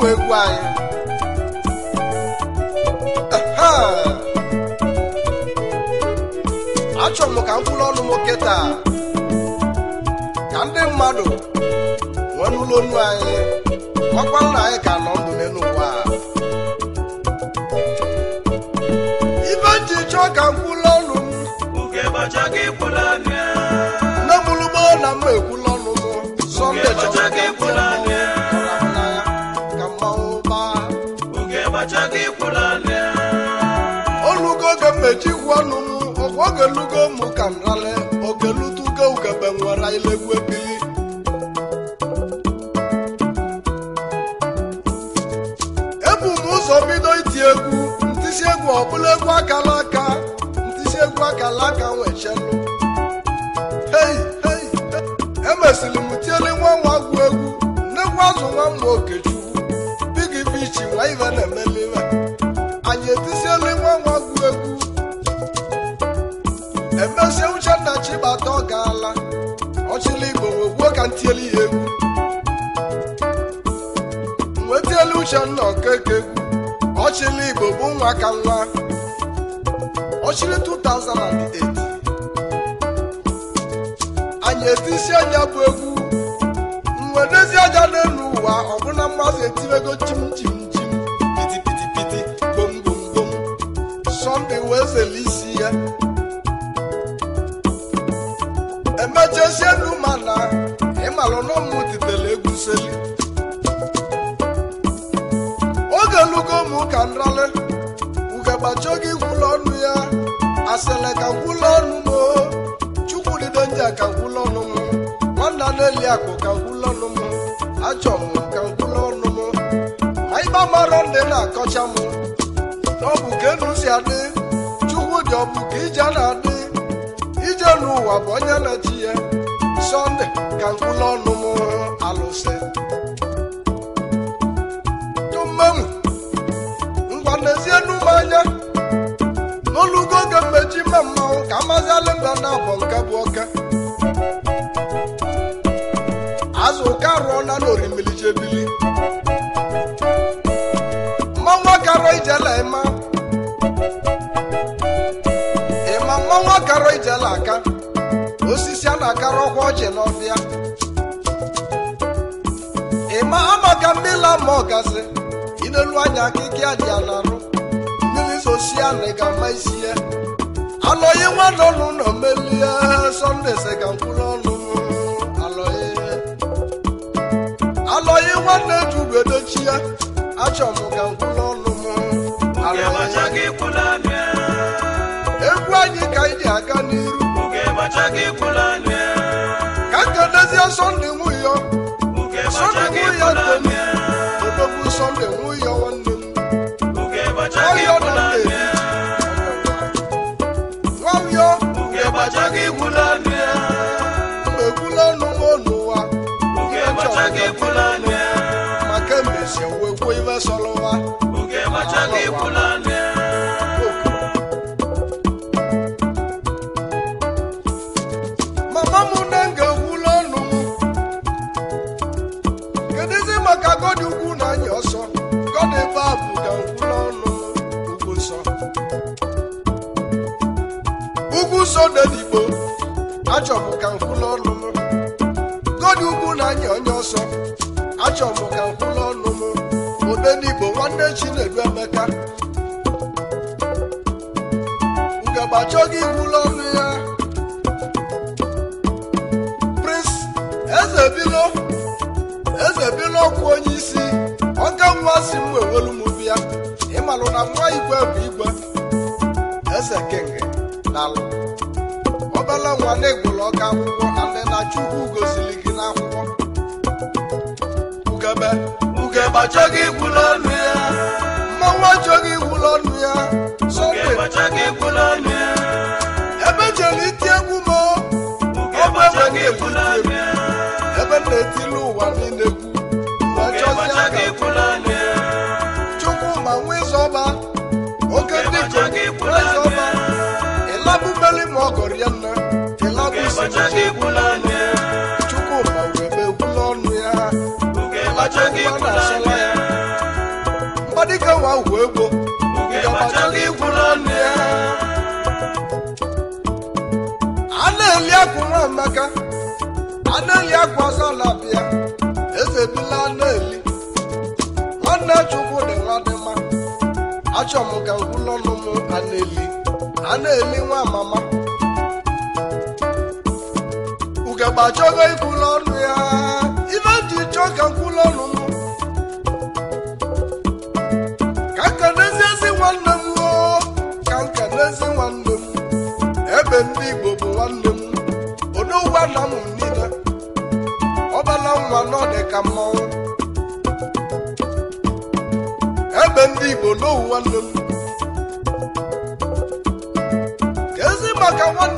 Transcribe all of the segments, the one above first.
ụmụ egwu anyị achọrọ m ka m kwụrụ ọnụ nwoke taa ka ndị mmadụ nwee n'ụlọ onu anyị ọkwa nna anyị ka nọ ndụ n'elu ụwa ibe nji chọọ ka m kwụrụ ọnụ m na m lụgbọ na mma ekwu elugo mmechi gwu ọnụ m ọkwa oge lugo ka m rale oge lutugo ugebe nwere ilegwu ebili ebu m ụzọ bido iti egwu ntisi egwu ọbụla egwu akala aka ntisi egwu akala aka nwechelu emesiri m tiele nwa nwa gwu egwu nnekwu azụ nwa mma okechukwu bigi bichi nwa ive na-emelive mezie uchenna chibata ọ gaala ọchịla igbo wegbuo ka ntielu ya egwu nwetielu uchenna ọkeke egwu ọchịla igbo bụ nwa ka nwa ọchịrị 2008 anyị etisi anya bụ egwu mwedezi aja n'elu ụwa ọbụna mmadụ etiwego chim chim chim piti piti piti gbom gbom gbom sọmpi wee zele isi ya machasie ndu mana ịmalụ na ụmụ titere egwuseli oge lugo mụ ka nrale ugegbacho gị gwụlọ ọnụ ya asele ka gwụlọ ọnụ m chukwudido nja ka gwụlọ ọnụ m nwanna na-eli ka ọnụ m m ka ọnụ m ma ịba ndị na-akọcha m ọ bụ ka enu si adị chukwu dị ọ bụ ka ije na-adị onye n'ụwa bụ onye na-echi ya sọnde ka nkwụla ọnụ m alụsị tummemu ngwa n'ezie n'ụmụ anya n'olugo oge mmeji ime mmanwụ ka amazi mba na abọ nke bụ ọchịlọbịa ị ma amaka mmiri ma ọgasị inelu anya akịkị adịa na arụ mmiri sosia na ịga ama isi ya alọghị nwanne ọnụ nọ melie sọnde sịga mkpụrụ ọnụ alọghị nwanne juru edochi ya achọ m ka mkpụrụ ọnụ m egwu anyị ka anyị aga on only moon. igwe bụ igwe eze kenge daalụ obele nwa na-egwuru ọka akwụkwọ ale na chukwu gosiri gị n'akwụkwọ ugebe ugebe achọghị igwuru ọnụ ya mmanwụ achọghị igwuru ọnụ ya ebe iti egwu ebe na-etili ụwa niile ọchọghị ikwula ọnụ ya Chukwuma wee ekwula ọnụ ya oge ọnụ ya oge ọnụ ya a na-eli akwa nwa a na-eli akwa eze nwanne dị m ka a na-eli a eli nwa mama agbachago ikwulu ọnụ ya ife dị ka nkwulu ọnụ m ka nka n'eziezi nwanne m ka nke n'ezi nwanne m ebe ndị Igbo bụ nwanne m odogwa na m niile ọbala nwa ka ebe ndị Igbo n'owu nwanne ka ezi maka nwanne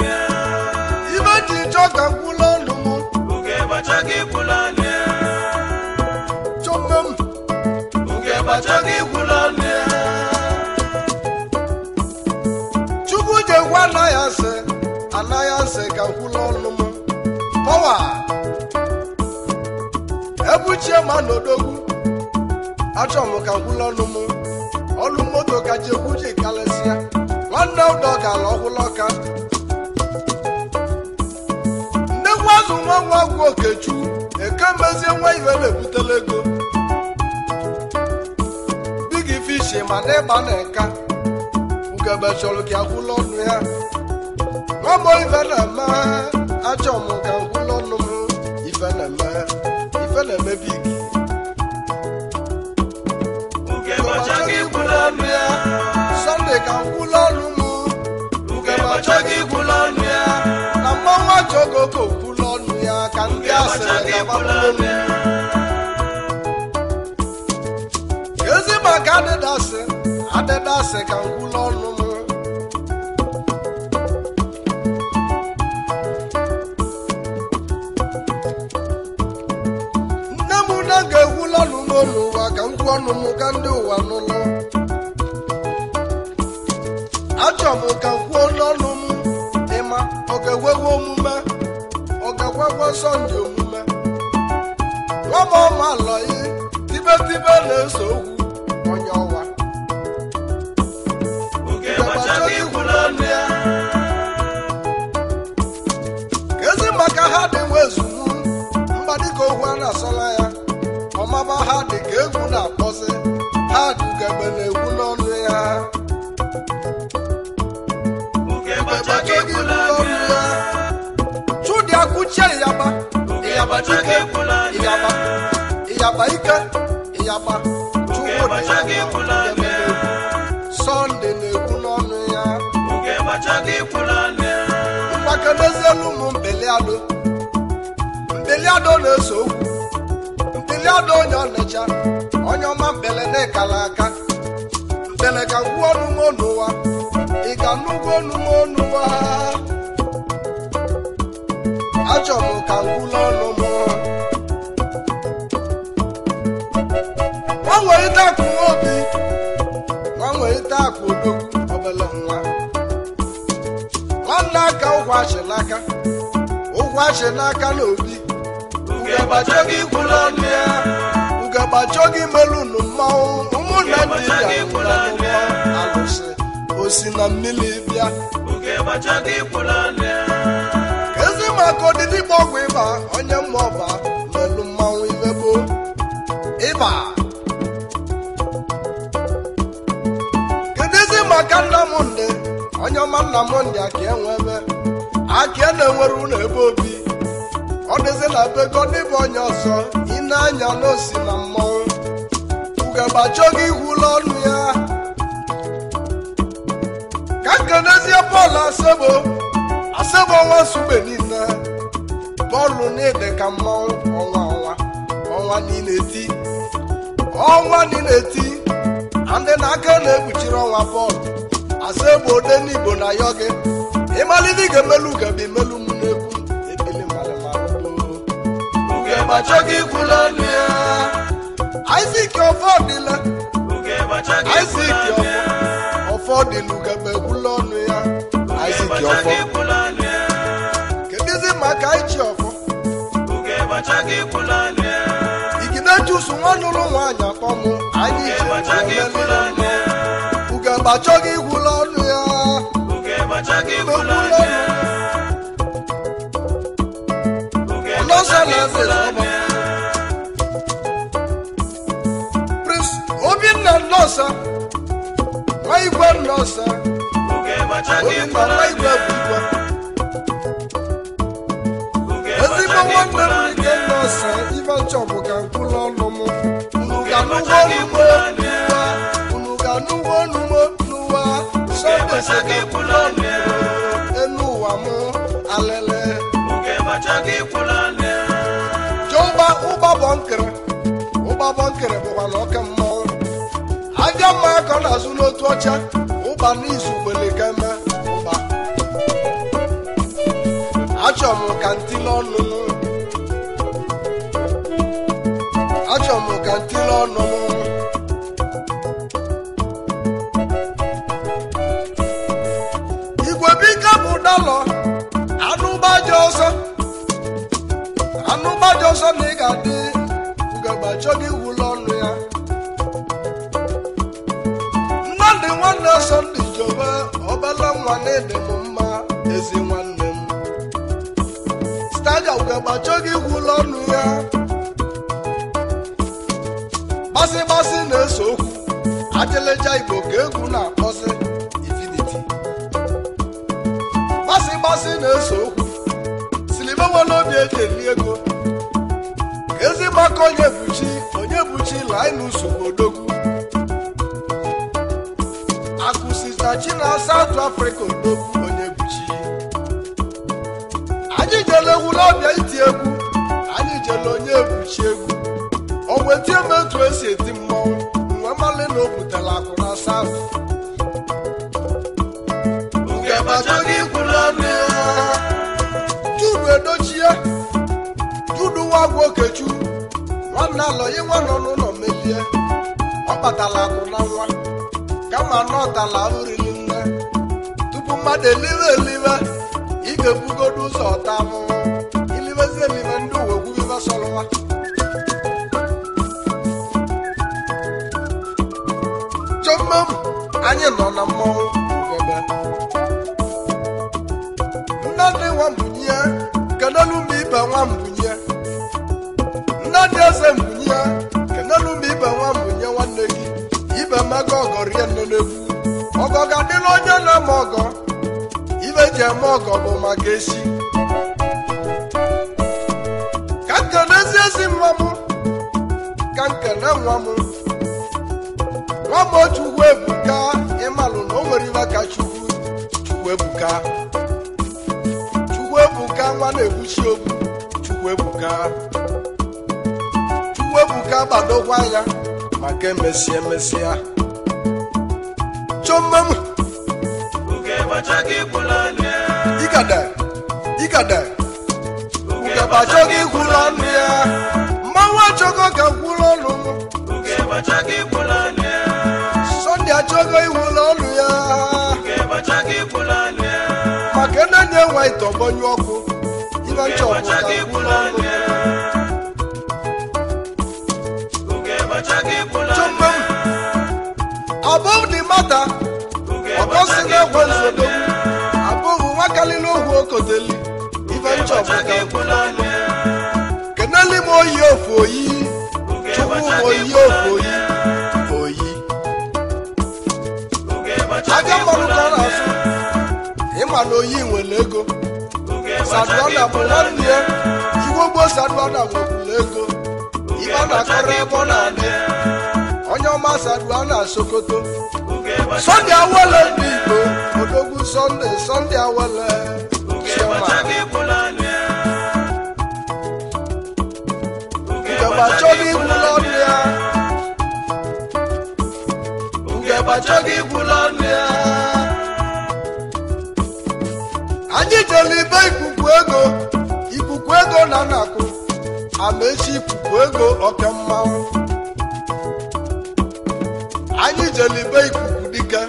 ekwula ọnụ m chukwu ji anaghị asị anaghị asị ka nkwụla ọnụ m ọwa ebuchie ma n'odogwu achọ ka nkwụla ọnụ m ọlụ moto kacha egwu ji karịsịa nwanne ụdọ ọgwụla ọka azụ nwa nwaagwụ okechukwu ekemezie nwa na ebutela ego bigi gị fishi ma na ịgba na nka ugebe chọrọ gị agwụla ọnụ ya nwamba ife na-eme achọ m ka ngwụla ọnụ m ife na-eme ife na-eme big sọnde ka ọnụ m ọnụ ya na mmanwụ achọghị agbalịa ezi maka adịdasị adịdasị ka ngwụla ọnụ m nne m na ga-egwula ọnụ m n'ụwa ka ngwụ ọnụ m ka ndị ụwa n'ụlọ achọ m ka kwuo n'ọnụ m ịma ọ ga-ewewe omume ọ ga-agwagwa sọnde omume ọma ọma lọyi tibetibe na-eso okwu onye ọwa ezi maka ha dị nwe ezunu mgbadika okwu a na-asọla ya ọmaba ha dị ka egwu na-akpọzi ha dugebe na ewu n'ọnụ ya chudi akwụchie yaba ike ịyagba chukwu sọnde na n'ọnụ ya mgbake n'ezielu ụmụ mbeliadụ na-eso okwu mbeliadụ onye ọnịcha onye ọma mbele na-ekala aka mbele ka ị ga nụgo ọnụma ọnụwa ka ọnụ m nwanwerịta akụ obi nwanwerịta akụ obere na aka ụkwụ achị n'aka na obi ugegbachoghị ikwulu ọnụ ya ugegbachoghị melụnụ mmanwụ ụmụnna ndị ya alụsị osi na mmiri bịa ka ezi maka ọgwụ ịba onye mma ọba aka nna m nne onye ọma nna m ndị enwe enwebe aki e na-enwere ụlọ ebe obi ọ dịzi na be godịbụ onye ọsọ ine anya n'osi na mmọnwụ ugegbachi oge iwula ọnụ ya ka nkenezie bọọlụ asebo asebo ọnwa nsugbe niile bọọlụ niile ka mmọnwụ ọnwa ọnwa ọnwa niile ti ọnwa niile ti ndị na-aka na-ekpuchiri ọnwa bọọlụ. asị egbe ode n'igbo na ayọ gị. ịmalite ga emelu ugebi emelu m n'ekwu ekele Isaac ọfọdịla Isaac ọfọdịla ugebe ekwula ọnụ ya Isaac ọfọ kedụzi maka iji ọfọ ọ nụrụ nwaanyị akpọnwụ anyị ugemgbe achọghị ịkwụla ọnụ ya ụmụ na Obinna Nnosa nwa igwe Nnosa Obinna nwa igwe bụ igwe ezigbo nwanne m nchọbụ nuwo nuwa unu ka nuwo nuwo nuwa sọgbẹsẹgbẹ kulo nẹ enu wa mu alẹlẹ. oge bàtàkì kulo nẹ. jọba ụba bọ nkere aja mma akọ na azụ n'otu igwe biko bụ dọlọ anụgbaja ọsọ anụgbaja na ị ga-adị ugegbacho gị ọnụ ya mmadụ nwanne sọnde jobe obele nwa na-ede mma ezi nwanne m staja gị wụlọ ọnụ ya mmasị na eso okwu ajeleja igbo ka egwu na-akpọsị ifiniti gbasị gbasị na-ese okwu silimewe n'obi eji eri ego ka ezi mgbakọ onye buchi onye buchi lainus odogwu akụsitachi na South afrịka odogwu onye buchi anyị jele egwu n'ọbịa iti egwu anyị jele onye buchi egwu wetie m etu esi eti mmọnwụ nwa mmalị na o butela akụ na saụ Judu Edochie Judu Nwagwu Okechu nwanne alọyi nwa nọ n'ụlọ melie ọ kpatala akụ na nwa kama na ọ nne tupu mmadụ eliwe eliwe ị ga-ebugodo ụzọ ọta mụ anyị nọ na mmọnwụ ebe nnadị nwambunye kenelu mgbe ibe Nna dị eze mbunye kenelu mgbe ibe nwambunye nwanne gị ibe mmego ọgọ rie nne n'egwu ọgọ ga-adịla onye na-eme ọgọ ibe ji eme ọgọ bụ ga esi ka nkene ezi ezi ka nwa m nwa m otu ugwu ebuka Chukwuebuka Chukwuebuka nwa na-ekwuchi okwu Chukwuebuka Chukwuebuka gbadokwa ya maka emesịa emesịa chọmmem igada igada ịma ite ọgbọnyụ ọkụ ịnọ ncha ọpụta mata na-egwe nzodo abụghị okoteli oyi ofu oyi ọkwa na oyi nwere ego sadụọna bụ nwanne ya iwe ogbo sadụọna nwekwuru ego ibe ọ na-akọrọ ebe ọ na-adị onye ọma sadụọna sokoto sọnde awele ndị igbo odogwu sọnde sọnde awele ngebe achọghị igwula ọnụ ya ngebe achọghị igwula site ikuku ego ikuku ego na nakụ echi ikuku ego ọka mmanwụ anyị jelibe ikuku dike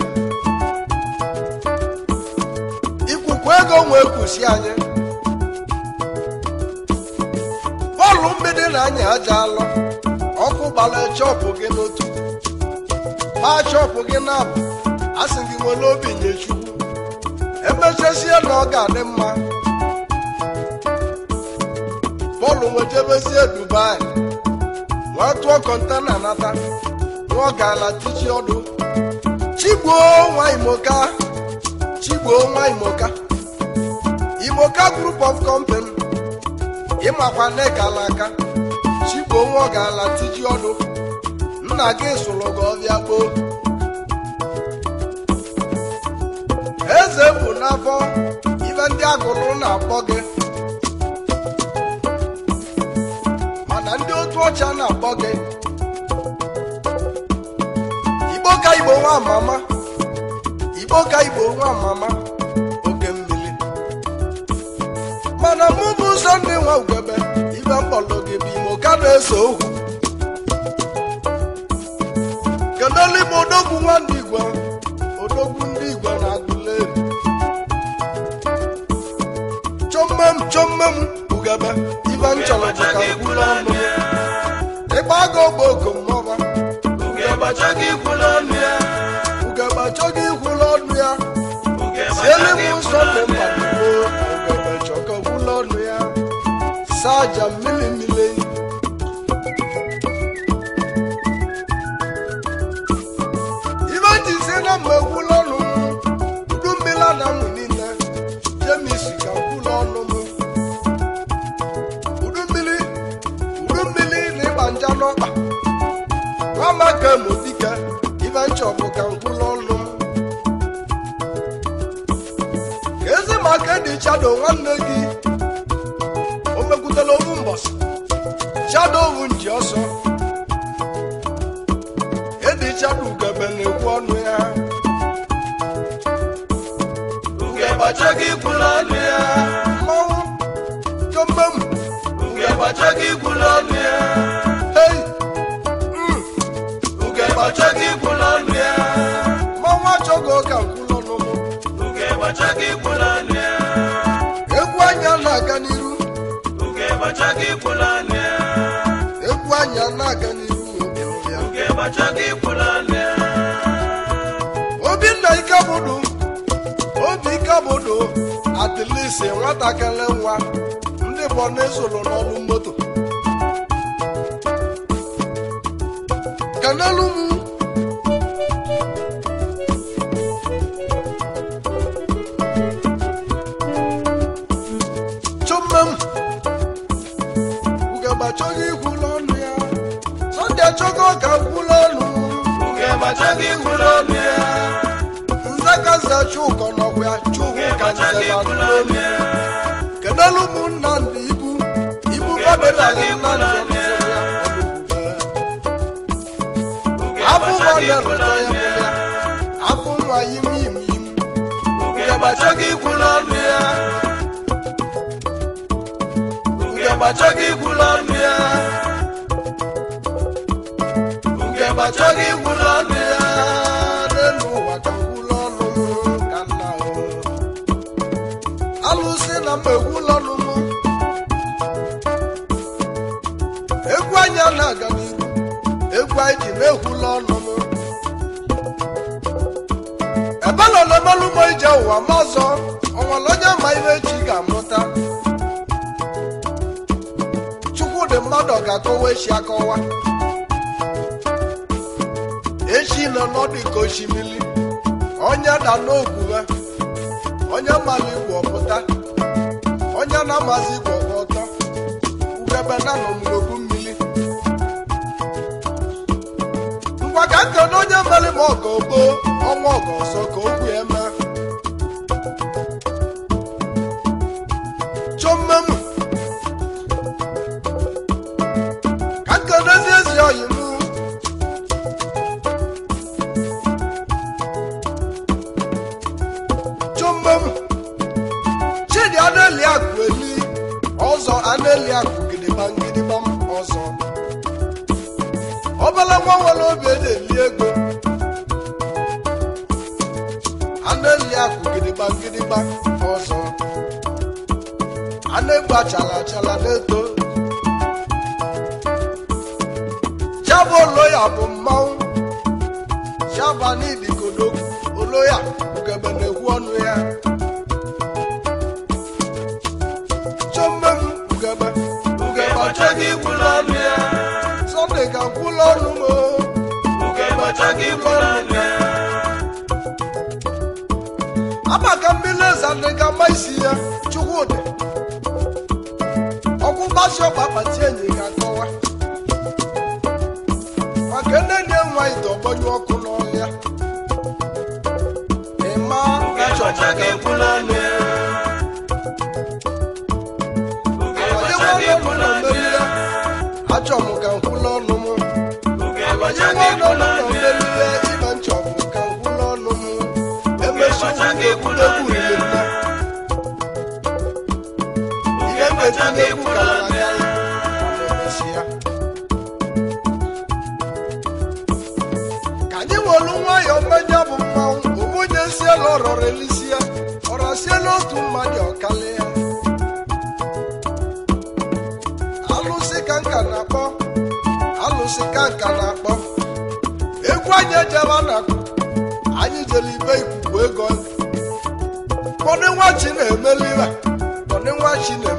ikuku ego nwee kwụsị anyị bọọlụ mgbidi na anyị aja alụ ọkụ gbara chọpụ gị n'otu ma chọpụ gị na-abụ a gị nwere obi nye chukwu emechazie na ọ ga-adị mma Pọl nwejebezie Dubai nwa tụọ kọntena nata nwa ọ ga ọdụ chigbuo nwa imoka chigbuo nwa imoka imoka group of company ịmakwa nne gala aka chigbuo nwa ọ ga-ala tichi ọdụ nna gị sụrụ gị ọbịa gboo eze bụ n'afọ ife ndị agụrụ na-akpọ gị mana ndị otu ọcha na-akpọ gị igbo ka igbo nwa amama igbo ka igbo nwa amama oge mmiri mana mụ ụzọ ndị nwa ugebe ife mkpọlụ gị bụ imo ka na-eso okwu kedụ eluigbo odogwu nwa ndị igwe ugebe ibe nchọrọ ka kwula ọnụ ịgba aga ogbe okomọba ugebe achọghị ikwula ọnụ ya ugebe achọghị ikwula ọnụ ya siele m ụzọ dị mkpa ugebe chọka kwula ọnụ ya saja mmiri nwanne gị o mekwutela ofu mbọsị chadovu nji ọsọ edi ugebe na-ekwu ọnụ ya ugebe achọghị ikwula ọnụ ya mmanwụ jombe m ọnụ ya hey hmm! atilisi nwatakịrị nwa ndị bọna esoro n'ọlụ moto kanelu m chuma m ugegbe achọghị ikwulu ọnụ ya sọnde achọghị ọka ka ọnụ ugegbe ọnụ ya kedụla ụmụnna ndị ibu ibu nna na ya ya nwa ikwu ya ya ji na-ekwula ọnụ m ebe na olemelụ m ije ụwa mazọ ọnwale onye ma ihe chi ga-amụta chukwu dị mmadụ ga-akọwa echi akọwa echi nọ n'ọdụ ka osimiri onye da n'ogwughe onye mara igbo ọpụta onye na-amazi igbo ọtọ ugebe na nọ n'obu nke na onye mere m ọka obo ọnwa ọka ọsọ ka okwu eme chọmmem ka nke na A ịkwara anya amaka mmiri eze isi ya chukwudị ọgwụ mgbasi ọgba akpati enyi ga-akọwa maka nne dị nwa ite ọgbọnyụ ọkụ n'ọhịa ịma achọchaghị e ịkwụla anya achọ m ga ororelisia ọrasie n'otu mmadụ ọkalịa alụsị ka nka na-akpọ alụsị ka nka na-akpọ egwu anyị ejela na-akpọ anyị jere ibe ikwukwu ego kpọdụ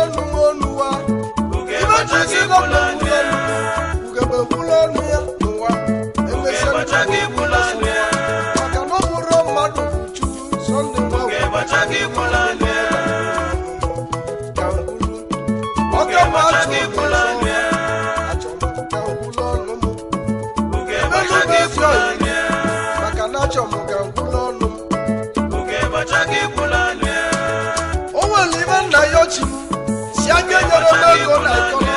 lẹ́nu olúwa. Òkè bá jẹ́ sí ológo náà tó.